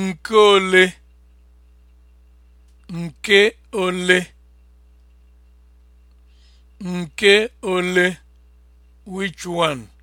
nke ole nke ole nke ole which one